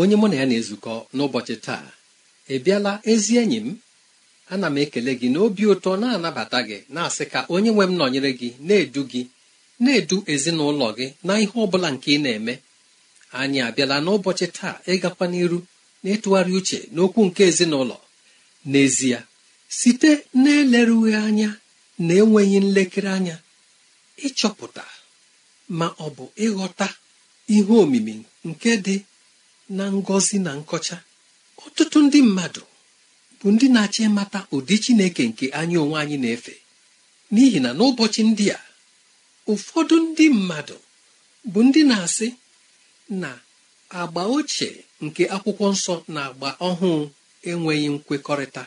onye mụ na ya na-ezukọ n'ụbọchị taa ị bịala ezi enyi m ana m ekele gị na obi ụtọ na-anabata gị na-asị ka onye nwe m nọnyere gị na-edu gị na-edu ezinụlọ gị na ihe ọ bụla nke ị na-eme anyị abịala n'ụbọchị taa ịgakwa n'iru na-ịtụgharị uche n'okwu nke ezinụlọ n'ezie site na-elerughị anya na enweghị nlekere anya ịchọpụta ma ọ bụ ịghọta ihe omimi nke dị na ngọzi na nkọcha ọtụtụ ndị mmadụ bụ ndị na-achọ ịmata ụdị Chineke nke anyị onwe anyị na-efe n'ihi na n'ụbọchị ndị a ụfọdụ ndị mmadụ bụ ndị na-asị na agba ochie nke akwụkwọ nsọ na agba ọhụụ enweghị nkwekọrịta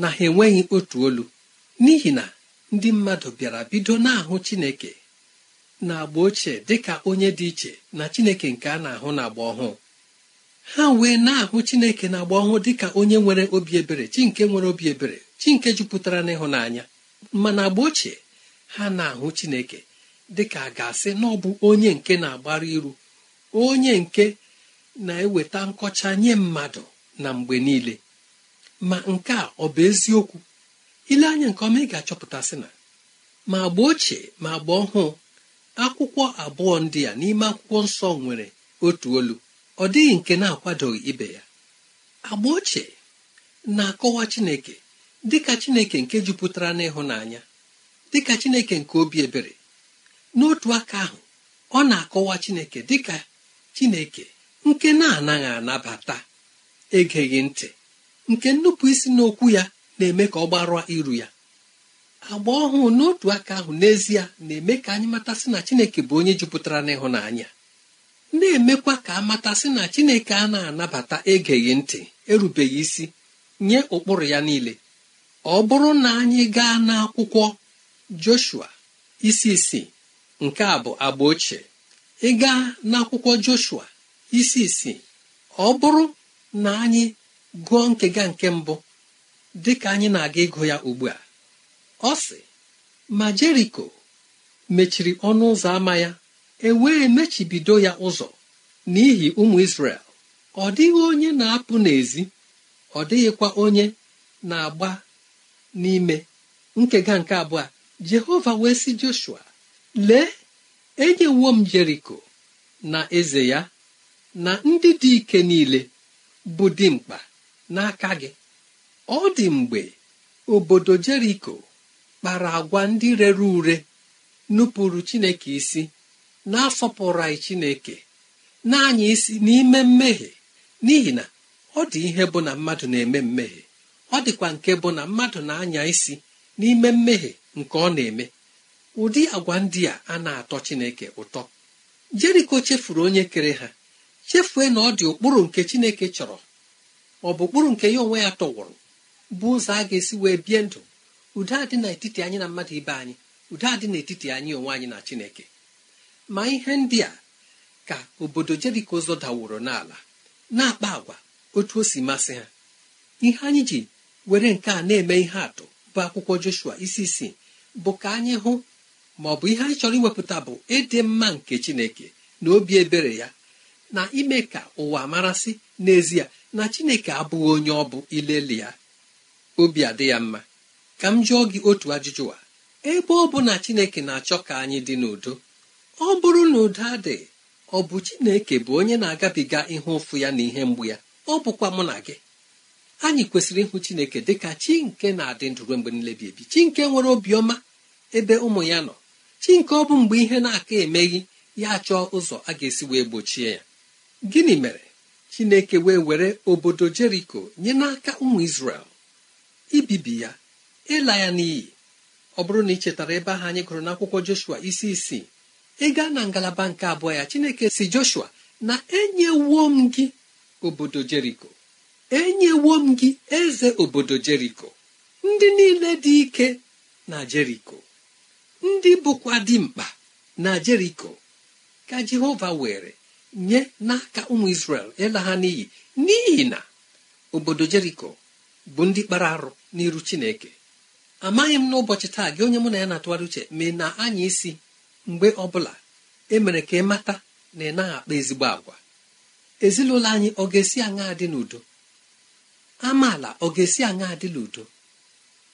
na ha enweghị otu olu n'ihi na ndị mmadụ bịara bido na-ahụ Chineke na agba ochie dịka onye dị iche na Chineke nke a na-ahụ na agba ọhụụ ha wee na-ahụ chineke na-agba ọhụụ dịka onye nwere obi ebere chi nke nwere obi ebere chi nke jupụtara n'ịhụnanya mana agba ochie ha na-ahụ chineke dịka a ga-asị na ọ bụ onye nke na-agbara iru onye nke na-eweta nkọcha nye mmadụ na mgbe niile ma nke a ọ bụ eziokwu ile anya nke ọma ị ga-achọpụtasị na ma agba ochie ma agba ọhụụ akwụkwọ abụọ ndị a n'ime akwụkwọ nsọ nwere otu olu ọ dịghị nke na-akwadoghị ibe ya agba ochie na-akọwa Chineke dịka Chineke nke jupụtara n'ịhụnanya dịka Chineke nke obi ebere n'otu aka ahụ ọ na-akọwa Chineke dịka Chineke nke na-anaghị anabata egeghị ntị nke nnupụ isi n'okwu ya na-eme ka ọ gbarụa iru ya agba ọhụụ n'otu aka ahụ n'ezie na-eme ka anyị matasị na Chineke bụ onye jupụtara n'ịhụnanya na-emekwa ka amata si na chineke a na-anabata egeghị ntị erubeghị isi nye ụkpụrụ ya niile ọ bụrụ na anyị gaa n'akwụkwọ joshua isi isii nke a bụ agba ochie ịgaa n'akwụkwọ joshua isi isii ọ bụrụ na anyị gụọ nkega nke mbụ dị ka anyị na-aga ịgụ ya ugbu a ọ sị ma jeriko mechiri ọnụ ụzọ ama ya e wee mechibido ya ụzọ n'ihi ụmụ isrel ọ dịghị onye na-apụ n'ezi ọ dịghịkwa onye na-agba n'ime nkega nke abụọ jehova wee sị joshua lee enyewo m jeriko na eze ya na ndị dị ike niile bụ dimkpa n'aka gị ọ dị mgbe obodo jeriko kpara agwa ndị rere ure nupụrụ chineke isi na pụrụ anyị chineke na-anya isi n'ime mmehie n'ihi na ọ dị ihe bụ na mmadụ na-eme mmehie ọ dịkwa nke bụ na mmadụ na-anya isi n'ime mmehie nke ọ na-eme ụdị agwa ndị a a na-atọ chineke ụtọ jeriko chefuru onye kere ha chefue na ọ dị ụkpụrụ nke chineke chọrọ ọ bụ ụkpụrụ nke ya onwe ya tọwụrụ bụ ụzọ a ga-esi wee bie ndụ udo adị n'etiti anyị na mmadụ ibe anyị udo adị n'etiti anyị onwe anyị na chineke ma ihe ndị a ka obodo jeriko ụzọ daworo n'ala na-akpa agwa otu o si masị ha ihe anyị ji were nke a na-eme ihe atụ bụ akwụkwọ joshua isi isi bụ ka anyị hụ ma ọ bụ ihe anyị chọrọ iwepụta bụ ịdị mma nke chineke na obi ebere ya na ime ka ụwa marasị n'ezie na chineke abụghị onye ọ bụ ileli ya obi adị ya mma ka m jụọ gị otu ajụjụ a ebe ọ bụ na chineke na-achọ ka anyị dị n'udo ọ bụrụ na ụda dị ọ bụ Chineke bụ onye na-agabiga ihe ụfụ ya na ihe mgbu ya ọ bụkwa mụ na gị anyị kwesịrị ịhụ Chineke dị ka chi nke na-adị ndụ ruo mgbe niile ebi chi nke nwere obiọma ebe ụmụ ya nọ chi nke ọ bụ mgbe ihe na-aka emeghị ya chọọ ụzọ a ga-esi wee gbochie ya gịnị mere Chineke wee were obodo Jeriko nye n'aka ụmụ isrel ibibi ya ịla ya n'iyi ọ bụrụ na ị chetara ebe ahụ anyị gụrụ n'akwụkwọ Joshua isi isii ị gaa na ngalaba nke abụọ ya chineke si joshua na enyewo m gị obodo jeriko enyewo m gị eze obodo jeriko ndị niile dị ike na jeriko ndị bụkwa mkpa na jeriko ka jehova were nye n'aka ụmụ isrel ịla ha n'iyi n'ihi na obodo jeriko bụ ndị kpara arụ n'iru chineke amaghị m n'ụbọchị taa gị onye mụ na ya na-atụgharị uche mee na anya isi mgbe ọbụla emere ka ị mata na ị naghị akpa ezigbo agwa ezinụlọ anyị ọ ga-esi aṅa dị n'udo amaala ọ ga-esi aṅa dị n'udo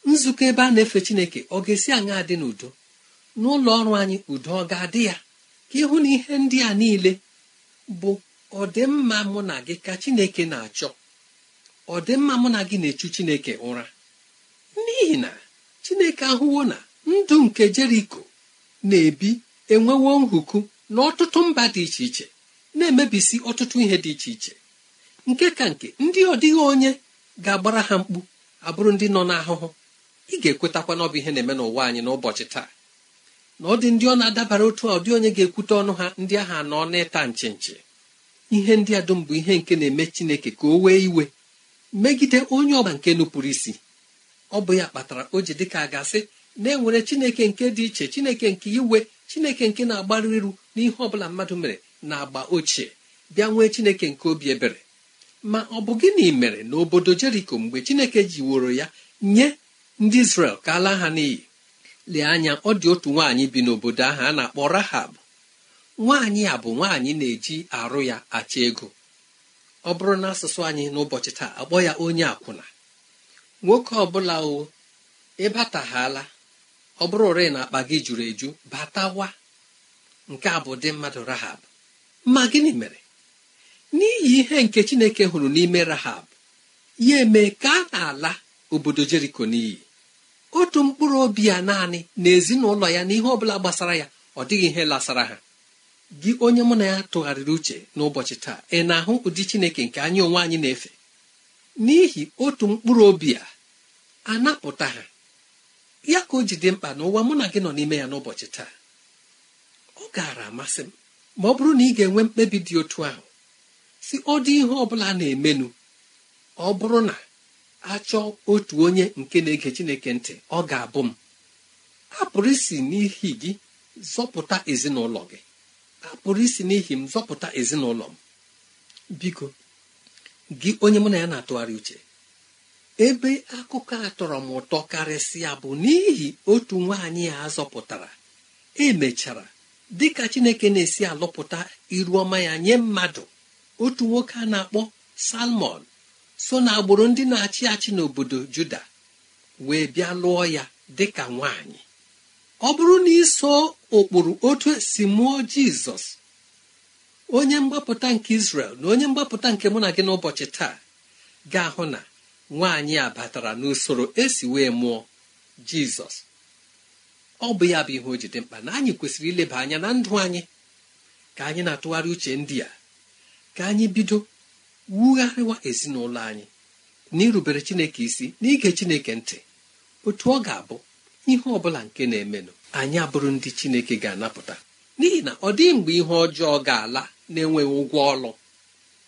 nzukọ ebe a na-efe chineke ọ ga-esi aṅa dị n'udo n'ụlọ ọrụ anyị udo ọ ga-adị ya ka ịhụ na ihe ndị a niile bụ ọdịmma mụ na gị ka chineke na-achọ ọdịmma mụ na gị na-echu chineke ụra n'ihi na chineke ahụwo na ndụ nke jeriko na-ebi enwewo nhuku n'ọtụtụ mba dị iche iche na-emebisi ọtụtụ ihe dị iche iche nke ka nke ndị ọ dịghị onye ga-agbara ha mkpu abụrụ ndị nọ n'ahụhụ ị ga-ekwetakwa n'ọbụ ihe na-eme n'ụwa anyị n'ụbọchị taa na ọ dị ndị ọ na-adabara otu a ọ dị onye ga-ekwute ọnụ ha ndị ahụ anọ n'ịta nche nche ihe ndị a dum bụ ihe nke na-eme Chineke ka o wee iwe megide onye ọba nke nupụrụ isi ọ bụ ya kpatara o ji dịka a ga-asị na-enwere chineke nke dị iche chineke nke iwe chineke nke na-agbaru iru n'ihe ọ bụla mmadụ mere na agba ochie bịa nwee chineke nke obi ebere ma ọ bụ gịnị mere na obodo jeriko mgbe chineke woro ya nye ndị isrel ka ala ha n'iyi lee anya ọ dị otu nwaanyị bi n'obodo ahụ a na-akpọ rahab nwaanyị a bụ nwaanyị na-eji arụ ya acha ego ọ bụrụ na asụsụ anyị n'ụbọchị taa akpọ ya onye akwụna nwoke ọbụla o ịbataghala ọ bụrụ ore na akpa gị juru eju batawa nke a bụ dị mmadụ rahab ma gịnị mere n'ihi ihe nke chineke hụrụ n'ime rahab ya eme ka a na-ala obodo jeriko n'iyi otu mkpụrụ obi ya naanị na ezinụlọ ya n'ihe ọ bụla gbasara ya ọ dịghị ihe lasara ha gị onye mụ na ya tụgharịrị uche n'ụbọchị taa ị na-ahụ ụdị chineke nke anyị onwe anyị na-efe n'ihi otu mkpụrụ obi a anapụta ha ya ka o ji dị mkpa n'ụwa mụ na gị nọ n'ime ya n'ụbọchị taa ọ gaara amasị m ma ọ bụrụ na ị ga-enwe mkpebi dị otu ahụ si ọ dị ihe ọ bụla na-emenụ ọ bụrụ na a chọọ otu onye nke na-ege Chineke ntị ọ ga-abụ m a isi n'ihi gị zọpụta ezinụlọ gị apụrụ isi n'ihi m zọpụta ezinụlọ m biko gị onye mụ na ya na-atụgharị uche ebe akụkọ a tọrọ m ụtọ karịsịa bụ n'ihi otu nwaanyị a zọpụtara emechara dịka chineke na-esi alụpụta iru ọma ya nye mmadụ otu nwoke a na-akpọ salmon so na agbụrụ ndị na-achị achị n'obodo juda wee bịa lụọ ya dịka nwaanyị ọ bụrụ na iso ụkpụrụ otu esi mụọ jizọs onye mgbapụta nke isrel na onye mgbapụta nke mụ na gị n'ụbọchị taa ga-ahụ na nwaanyị a batara n'usoro esi wee mụọ jizọs ọ bụ ya bụ ihe o jide mkpa na anyị kwesịrị ileba anya na ndụ anyị ka anyị na-atụgharị uche ndị a ka anyị bido wugharịwa ezinụlọ anyị n'irubere chineke isi na ige chineke ntị otu ọ ga-abụ ihe ọ bụla nke na-emenụ anyị abụrụ ndị chineke ga-anapụta n'ihi na ọ dịghị mgbe ihe ọjọọ ga-ala na-enweghị ụgwọ ọlụ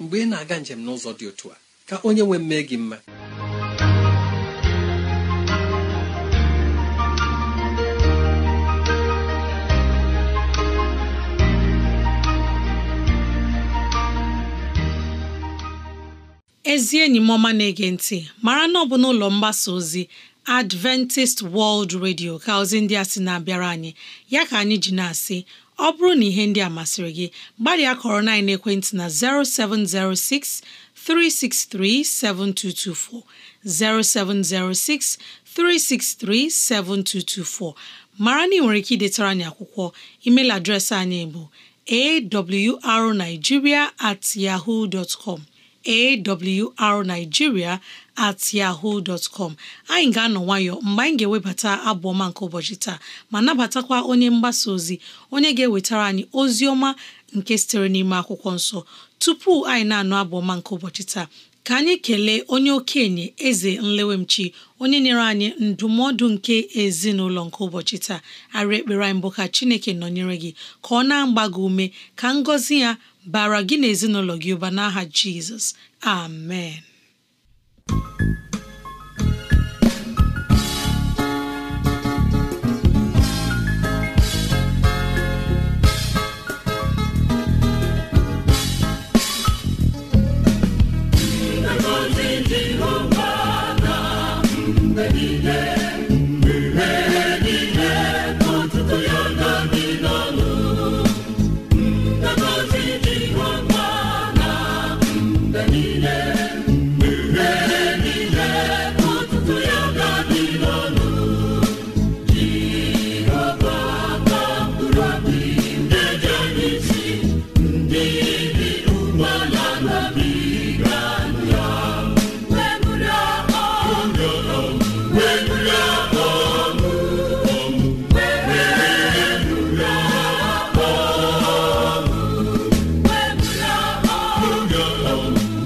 mgbe ị na-aga njem n'ụzọ dị otu a ka onye nwe mmee gị mma ezi enyi m ọma na-ege ntị mara na ọ bụ n'ụlọ mgbasa ozi Adventist World Radio ka ozi ndị a sị na-abịara anyị ya ka anyị ji na-asị ọ bụrụ na ihe ndị a masịrị gị gbalịa kọrọ na ekwentị na 0706 363 7224 0706 363 7224 mara na ị nwere ike idetara anyị akwụkwọ email adreesị anyị bụ awrnigeria at yahoo dot com awrnigeria at yahoo dot com anyị ga-anọ nwayọ mgbe anyị ga-ewebata abụ ọma nke ụbọchị taa ma nabatakwa onye mgbasa ozi onye ga-ewetara anyị ozi ọma nke sitere n'ime akwụkwọ nsọ tupu anyị na-anụ abụ ọma nke ụbọchị taa ka anyị kelee onye okenye eze nlewemchi onye nyere anyị ndụmọdụ nke ezinụlọ nke ụbọchị taa arị ekpere anyị mbụ ka chineke nọnyere gị ka ọ na-agba gị ume ka ngọzi ya bara gị na ezinụlọ gị ụba n'aha Jizọs amen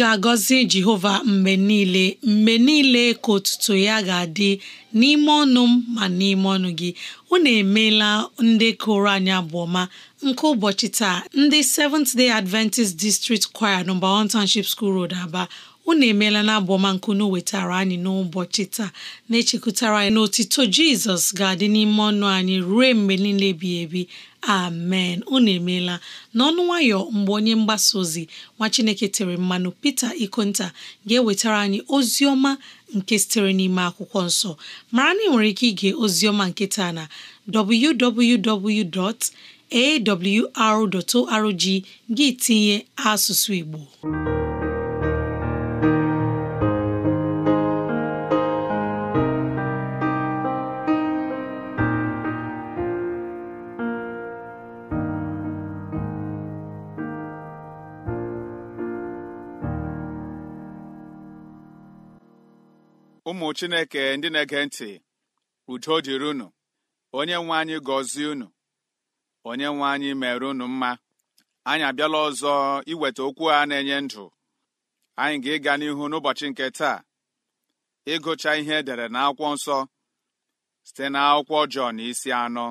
ga-agọzi Jehova mgbe niile mgbe niile ka otuto ya ga-adị n'ime ọnụ m ma n'ime ọnụ gị unu emeela ndị kụrụ anyị abụọma nke ụbọchị taa ndị Seventh Day Adventist District Choir nọmba 1 Township School Road Aba unu emeela na abụọma nke wetara anyị n'ụbọchị taa na-echekwutara anyị na otito Jizọs ga-adị n'ime ọnụ anyị ruo mgbe niile ebighị ebi amen unu emeela n'ọnụ nwayọ mgbe onye mgbasa ozi nwa chineke tere mmanụ pete ikonta ga-ewetara anyị ozi ọma nke sitere n'ime akwụkwọ nsọ mara na ị nwere ike ige ozi ọma nke taa na www.awr.org gị tinye asụsụ igbo ụmụ chineke ndị na-ege ntị udo dịrị unu onye nwe anyị gọzie unu onye nwe anyị mere unu mma anyị abịala ọzọ iweta okwu a na-enye ndụ anyị ga-ịga n'ihu n'ụbọchị nke taa ịgụcha ihe edere n'akwụkwọ nsọ site n'akwụkwọ Jọn isi anọ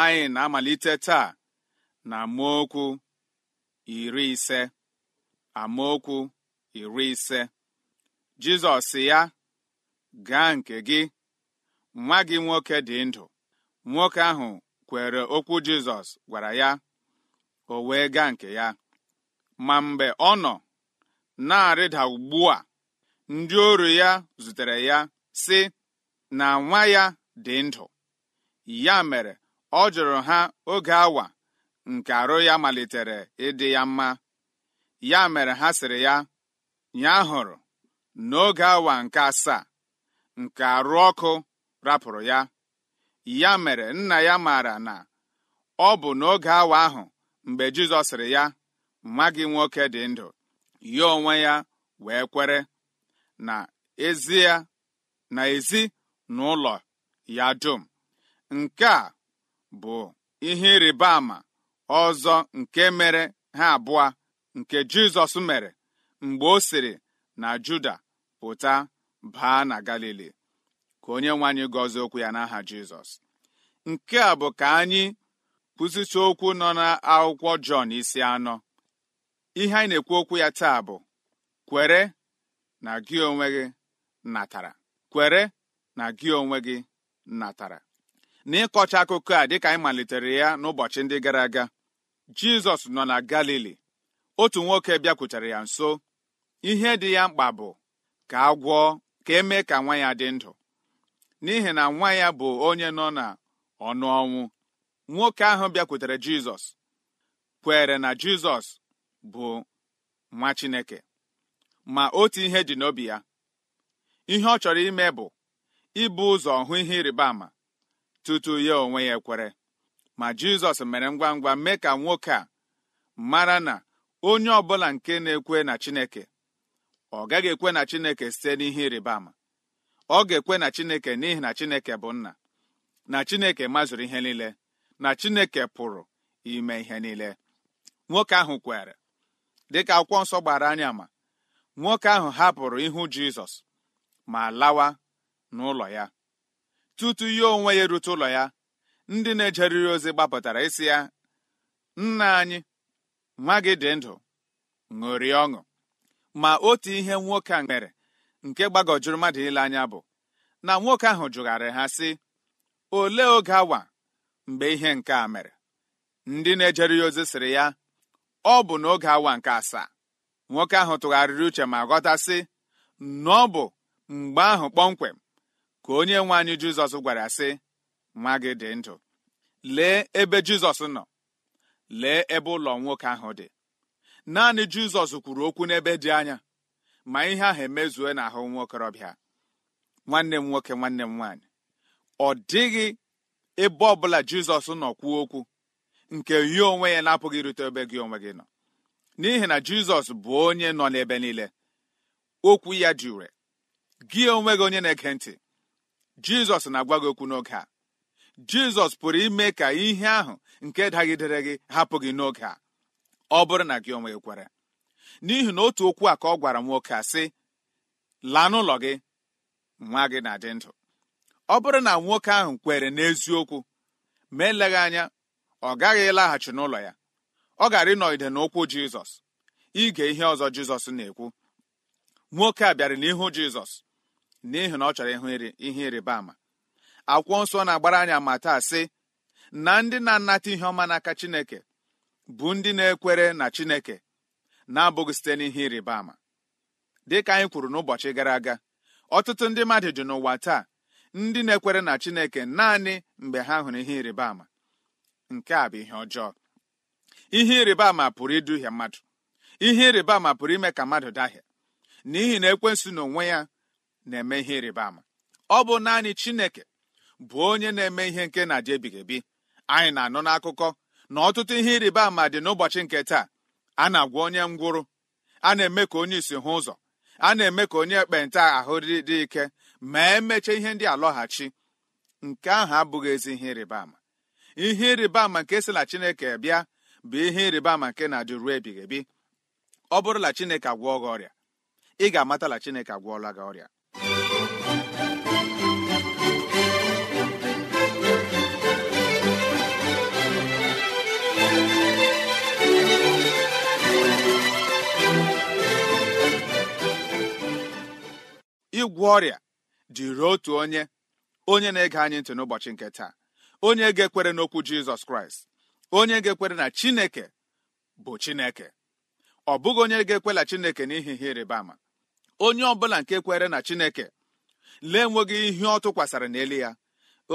anyị na-amalite taa na amaokwu iri ise amaokwu iri ise Jizọs ya gaa nke gị nwa gị nwoke dị ndụ nwoke ahụ kwere okwu Jizọs gwara ya o wee gaa nke ya ma mgbe ọ nọ na-arịda ugbu a ndị oru ya zutere ya sị na nwa ya dị ndụ ya mere ọ jụrụ ha oge awa nke arụ ya malitere ịdị ya mma ya mere ha sịrị ya ya hụrụ n'oge awa nke asaa nke arụ ọkụ rapụrụ ya ya mere nna ya maara na ọ bụ n'oge awa ahụ mgbe Jizọs sịrị ya nwa gị nwoke dị ndụ ya onwe ya wee kwere na ezi ya na ezi ya dum nke a bụ ihe ịrịba ama ọzọ nke mere ha abụọ nke Jizọs mere mgbe o siri na Juda pụta baa na Galili ka onye nwe anyị gọzie okwu ya n'aha jizọs nke a bụ ka anyị kwụsịcha okwu nọ n'akwụkwọ jọn isi anọ ihe anyị na-ekwu okwu ya taa bụ kwere na gị onwe gị natara kwere na gị onwe gị natara n'ịkọcha akụkọ a dịka anyị malitere ya n'ụbọchị ndị gara aga jizọs nọ na galili otu nwoke bịakwutere ya nso ihe dị ya mkpa bụ ka agwọ ka emee ka nwa ya dị ndụ n'ihi na nwa ya bụ onye nọ na ọnụ ọnwụ nwoke ahụ bịakwutere jizọs kwere na jizọs bụ nwa chineke ma otu ihe dị n'obi ya ihe ọ chọrọ ime bụ ịbụ ụzọ hụ ihe ịrịba ama tutu ya onwe ya ekwere ma jizọs mere ngwa ngwa mee ka nwoke a mara na onye ọbụla nke na-ekwe na chineke ọ gaghị ekwe na chineke site n'ihe ịrịba ama ọ ga-ekwe na chineke n'ihi na chineke bụ nna na chineke mazụrụ ihe niile na chineke pụrụ ime ihe niile nwoke ahụ kwere dịka akwụkwọ nsọ gbara anya ma nwoke ahụ hapụrụ ihu jizọs ma lawa n'ụlọ ya tutu ya onwe ya erute ụlọ ya ndị na-ejeriri ozi gbapụtara isi ya nna anyị nwa gị dị ndụ ṅụrie ọṅụ ma otu ihe nwoke a mere nke gbagọjuru mmadụ ile anya bụ na nwoke ahụ jụgharị ha sị olee oge awa mgbe ihe nke a mere ndị na-ejere ya ozi sịrị ya ọ bụ n'oge awa nke asaa nwoke ahụ tụgharịrị uche ma ghọtasị na ọ bụ mgbe ahụ kpọmkwem ka onye nwe anyị Jizọs gwara sị nwa gị dị ndụ lee ebe Jizọs nọ lee ebe ụlọ nwoke ahụ dị naanị Jizọs kwuru okwu n'ebe dị anya ma ihe ahụ emezue na ahụ nwa okorobịa nwanne m nwoke nwanne m nwaanyị ọ dịghị ebe ọbụla jizọs nọ kwuo okwu nke ya onwe ya na-apụghị irute ebe gị onwe gị nọ n'ihi na jizọs bụ onye nọ n'ebe niile okwu ya dị ure gị onwe gị onye na-ege ntị jizọs na-agwa gị okwu n'oge a jizọs pụrụ ime ka ihe ahụ nke dagidere gị hapụ gị n'oge a ọ bụrụ na gị onwe gị kwere n'ihi na otu okwu a ka ọ gwara nwoke a sị laa n'ụlọ gị nwa gị na-adị ndụ ọ bụrụ na nwoke ahụ kwere n'eziokwu ma eleghị anya ọ gaghị ịlaghachi n'ụlọ ya ọ gara ịnọgide n'ụkwụ jizọs ige ihe ọzọ jizọs na-ekwu nwoke a bịara n'ihu jizọs n'ihi na ọ chọrọ ịhụ ihe ịrịba ama akwụkwọ nsọ na-agbara anyị ma taa sị na ndị na-anata ihe ọma n'aka chineke bụ ndị na-ekwere na chineke na-abụghị site n'ihe ịrịba ama dịka anyị kwuru n'ụbọchị gara aga ọtụtụ ndị mmadụ dị n'ụwa taa ndị na-ekwere na Chineke naanị mgbe ha hụrụ ihe ịrịba ama nke a bụ ihe ọjọọ ihe ịrịba ama pụrụ iduhie mmadụ ihe ịrịba ama pụrụ ime ka mmadụ dahie n'ihi na ekwensu na onwe ya na-eme ihe ịrịba ama ọ bụ naanị Chineke bụ onye na-eme ihe nke na-adị ebighị ebi anyị na-anụ n'akụkọ na ọtụtụ ihe ịrịba ama dị n'ụbọchị nke taa a na-agwa onye ngwụrụ a na-eme ka onye isi hụ ụzọ a na-eme ka onye ekpenta ahụ dị ike ma emechaa ihe ndị alọghachi nke ahụ abụghị ezi ihe ịrịba ama ihe ịrịba ama nke si na chineke bịa bụ ihe ịrịba ama nke na-adị ruo ebighị ebi ọ bụrụla chineke agwọọ gị ọrịa ị ga-amatala chineke agwọọla gị ọrịa ịgwọ ọrịa dịrị otu onye onye na-ege anyị ntị n'ụbọchị nke taa onye ga-ekwere n'okwu jizọs kraịst onye ga-ekwere na chineke bụ chineke ọ bụghị onye ga-ekwela chineke n'ihi ihe ịrịba ama onye ọ bụla nke kwere na chineke lee enweghị ihe ọ tụkwasịrị n'elu ya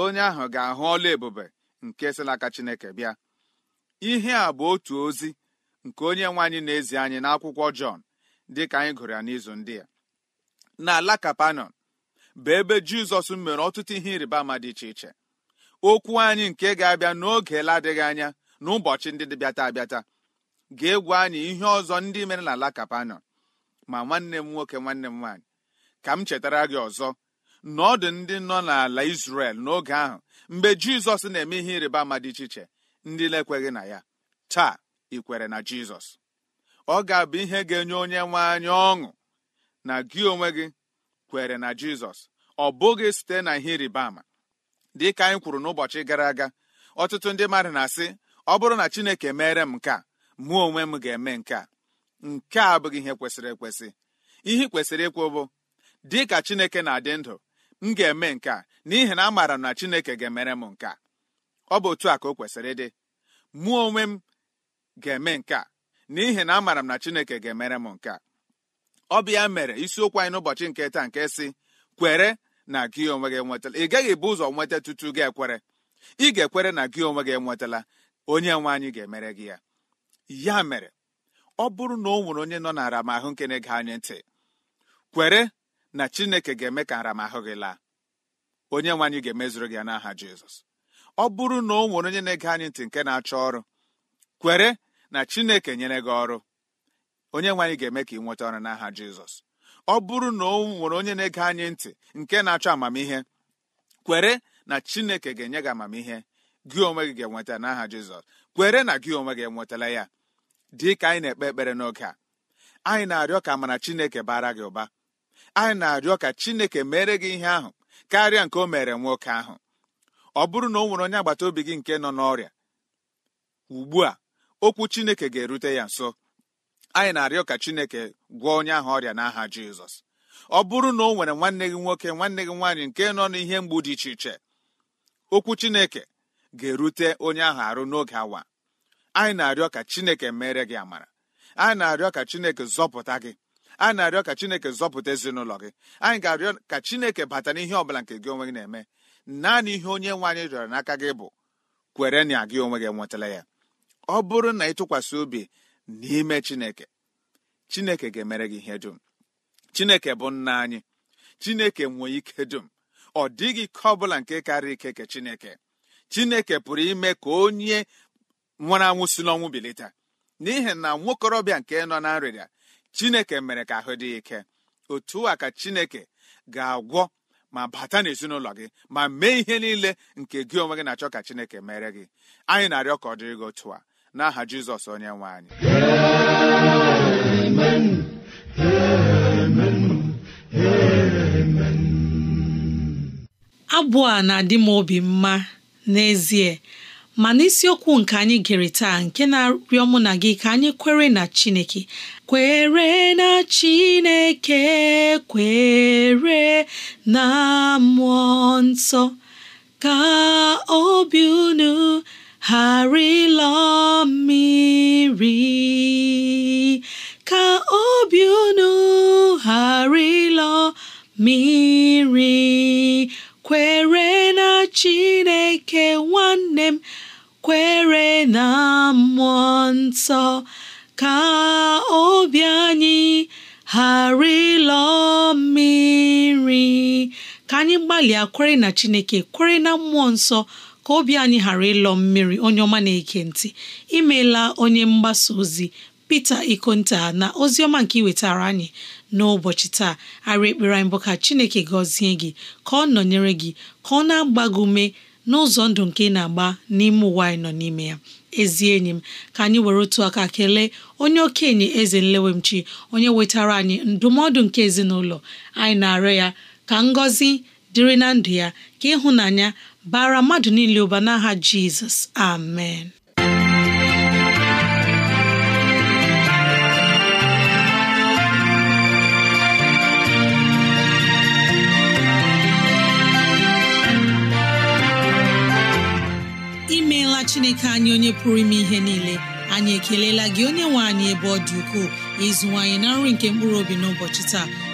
onye ahụ ga-ahụ ọla ebube nke si n'aka chineke bịa ihe a bụ otu ozi nke onye nwe anyị na-ezi anyị n'akwụkwọ Jọn dịka anyị gụrụ ya n'izu ndị a n'ala kapanọn bụ ebe jizọs mere ọtụtụ ihe ịrịba ama dị iche iche okwu anyị nke ga-abịa n'oge ladịghị anya n'ụbọchị ndị dịbịata abịata ga egwu anyị ihe ọzọ ndị mere ala kapanọn ma nwanne m nwoke nwanne m nwaanyị ka m chetara gị ọzọ na ọ dị ndị nọ n'ala isrel n'oge ahụ mgbe Jizọs na-eme ihe ịrịba ama dị iche iche ndị na-ekweghị na ya taa ị kwere na Jizọs ọ ga-abụ ihe ga-enye onye nwe anyị ọṅụ na gị onwe gị kwere na jizọs ọ bụghị site na ihe ịrịba ama dị ka anyị kwuru n'ụbọchị gara aga ọtụtụ ndị mmadụ na-asị ọ bụrụ na chineke mere m nke a mụ onwe m ga-eme nke a nke a abụghị ihe kwesịrị ekwesị ihe kwesịrị ịkwụ bụ dị ka chineke na-adị ndụ m ga-eme nke a n'ihi na amaara m na chineke ga-emere m nke a ọ bụ otu a ka o kwesịrị ịdị mụọ onwe m ga-eme nke a n'ihi na amaara m na chineke ga-emere m nke a ọ bụ ya mere isiokwu anyị n'ụbọchị nke taa nke si kwere na gị onwe gị enwetala ị gaghị ebu ụzọ nweta tutu gị ekwere ị ga-ekwere na gị onwe gị enwetala onye nwe anyị ga-emere gị ya ya mere ọ bụrụ na ọ nwere onye nọ na aramahụ nke na-ege anyị ntị kwere na chineke ga-eme ka aramahụ gị laa onye nwe anyị ga-emezuru gị ya n'aha jizọs ọ bụrụ na o nwere onye na-ege anyị ntị nke na-achọ ọrụ kwere na chineke nyere gị ọrụ onye nwe anyị ga-eme ka ị nweta ọrụ n'aha jizọs ọ bụrụ na o nwere onye na-ege anyị ntị nke na-achọ amamihe kwere na chineke ga-enye gị amamihe gị onwe gị ga-enweta n'aha jizọs kwere na gị onwe gị enwetala ya dị ka anyị na-ekpe ekpere n'oge a anyị na-arịọ ka amara chineke bara gị ụba anyị na-arịọ ka chineke mere gị ihe ahụ karịa nke o mere nwoke ahụ ọ bụrụ na o nwere onye agbata obi gị nke nọ n'ọrịa ugbu a okwu chineke ga-erute ya nso anyị na-arịọ ka chineke gwọọ onye ahụ ọrịa n'aha jizọs ọ bụrụ na o nwere nwanne gị nwoke nwanne gị nwaanyị nke nọ n'ihe mgbu dị iche iche okwu chineke ga-erute onye ahụ arụ n'oge awa anyị na-arịọ ka chineke mere gị amara anyị na-arịọ ka chineke zọpụta gị anyị na-arịọ ka chineke zọpụta ezinụlọ gị anyị ga-arịọ ka chineke bata n'ihe ọbụla nke gị onwe gị na-eme naanị ihe onye nwaanyị rịọrọ n'aka gị bụ kwere na gị onwe gị nwetala ya ọ bụrụ na ị tụkwasị obi n'ime chineke chineke ga-emere gị ihe dum chineke bụ nna anyị chineke nwee ike dum ọ dịghị ike ọ bụla nke karịa ike ke chineke chineke pụrụ ime ka onye nwere anwụ si n'ọnwụ bilita n'ihi na nwokorobịa nke nọ na nrịrịa chineke mere ka ahụ dị ike otu a ka chineke ga-agwọ ma bata n'ezinụlọ gị ma mee ihe niile nke gị onwe gị na-achọ ka chineke mere gị anyị na-arịọ ka ọ dịrị otu a n'aha jizọs onye nwe anyị amen amen amen abụ a na-adị m obi mma n'ezie mana isiokwu nke anyị gere taa nke na-arịọ mụ na gị ka anyị kwere na chineke kwere na chineke kwere na mmụọ nsọ ka obi unu ghara mmiri ka obi unu ghara mmiri kwere na Chineke nwanne m kwere na mmụọ nsọ ka obi anyị ghara mmiri ka anyị gbalịa kwere na Chineke kwere na mmụọ nsọ ka obi anyị ghara ịlọ mmiri onye ọma na-eke ntị imeela onye mgbasa ozi Peter Ikonta na ozi ọma nke iwetara anyị n'ụbọchị taa arị ekpere anyị bụ ka Chineke gọzie gị ka ọ nọnyere gị ka ọ na-agba gị ume n'ụzọ ndụ nke ị na-agba n'ime ụwa anyị nọ n'ime ya ezi enyi m ka anyị were otu aka kelee onye okenye eze nlewemchi onye wetara anyị ndụmọdụ nke ezinụlọ anyị na-arịọ ya ka ngọzi dịrị na ndụ ya ka ịhụnanya bara mmadụ niile ụba n'aha jizọs amen imeela chineke anyị onye pụrụ ime ihe niile anyị ekelela gị onye nwe anyị ebe ọ dị ukwuu ịzụwanyị na nri nke mkpụrụ obi n'ụbọchị taa